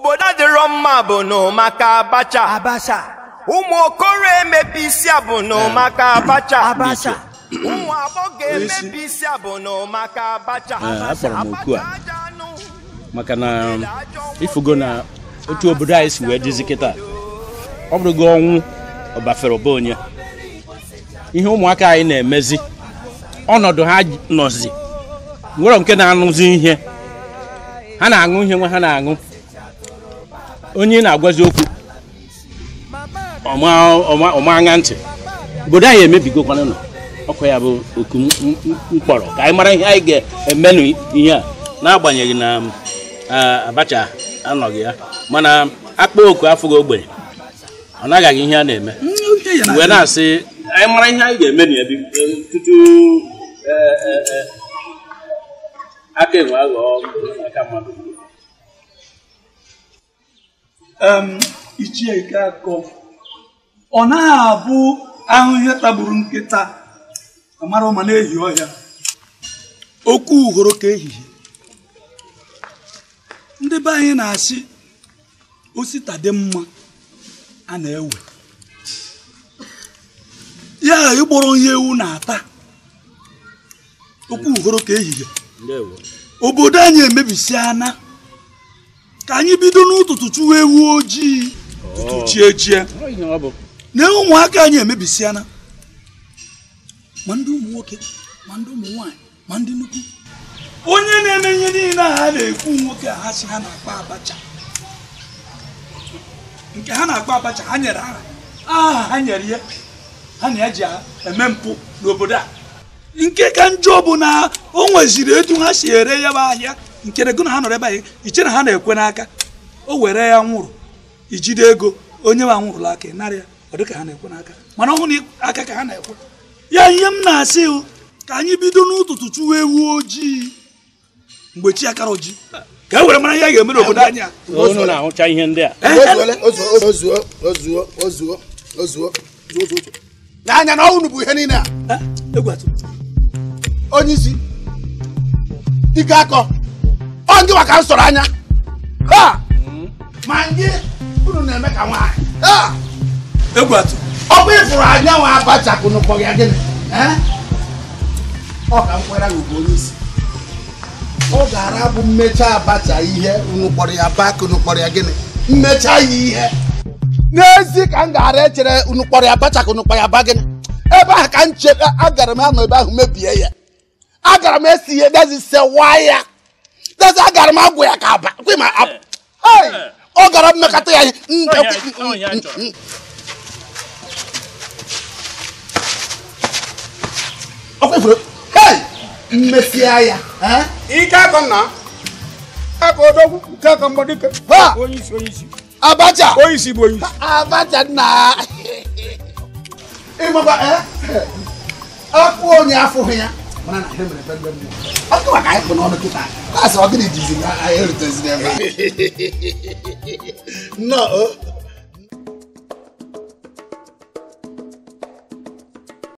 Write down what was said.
obodo adịrọ mma bụ n'ụmaka abacha abacha ụmụ okoro emepe isi bụ n'ụmaka abacha abacha ụmụ agbọghọ emepe isi a bụ n'ụmaka abacha m oku a maka na ifugo um, na otu obodo anyị si wee dịzi kịta ọ bụrụ gị ọnwụ ọbafere ọba onye ihe ụmụaka anyị na-emezi ọnọdụ ha nọzi nwere nke na-anụzi ihe ha na-aṅụ ihe nwa ha na-aṅụ onye na-agwazi okwu ọmaanya ntị obodo anyị emebigokwana nọ ọkwa ya bụ oku mkpọrọ ka anyị mara ihe anyị ga-emenụ ihe a n'agbanyeghị na um, abacha anọghị ya mana akpa oku afọ ogbenye ọ naghị ihe a na-eme mm, wee na-asị anyị mara ihe anyị ga-eme na tutu e, e, e, aka enwe aghọọ aka mmadụ ichie nke akọ ọ na abụ ahụ ihe tagburu nkịta amara ụma na-ehi ọhịa okwu uhoro ka ehihie ndị be anyị na-asị osita dị mma a na-ewe ya ịgbọrọ ihe ewu na-ata okwu uhoro ka ehihie obodo anyị emebisi ana. ka anyị bido n'ụtụtụ chụwa ewu ojii tutu oh. chie chie na ụmụaka anyị emebisiana ma ndị ụmụ nwoke ma ndị ụmụ nwanyị ma ndị nnukwu onye na-eme ihe niile a ha na-ekwu nwoke a ha si ha na-akpa abacha nke ha na-akpa abacha ha nyere aha aha ha nyere ya ha na eji ji eme mpụ n'obodo a nke ka njọ bụ na o nweziri etu ha si ere ya bụ ahịa nkere gụ na ha nọrọ ebe anyị iche na ha na-ekwe n'aka o were ya nwụrụ ijide ego onye nwa nwụrụla aka narị ya ọ dịka ha na-ekwe n'aka mana ọhụrụ aka ka ha na-ekwe ya ihe m na-asị ka anyị bido n'ụtụtụ chụwa ewu ojii mgbe chi akara oji ka e were mara ihe a ga-eme n'obodo anyị na-ahụcha ihe ndị a n'anya na ọnwụ bụ ihe niile a onye isi dike akọ ndị maka nsọrọ anya ma ndị unu na-eme ka nwaanyị ọ bụ ịfụrụ anya nwa abacha kụnụkpọ ya gịnị ọ ka nkwara bụ onye ọ gara bụ mmecha abacha ihe unu kpọrọ ya bak unu ya gịnị mmecha ya ihe n'ezi ka m gara echere unu ya abacha ka ya ba gịnị ebe ahụ ka m chere agara m anọ ebe ahụ mebie ya agara m esi ihe dezi sewa ya eze agara m agwụ ya ka aba ọ gara mmekata ya ihe ya ike akọ nke onyeisi onyeisi abacha onyeisi bụ onyeisi abacha nna ịmakwa eh? akụ onye afụghị ya mana na mere maka anyị kpụ n'ọnụ kịta asị ọ gịnị jizi eruteziri ebe a